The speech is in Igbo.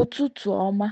Ụtụtụ ọma.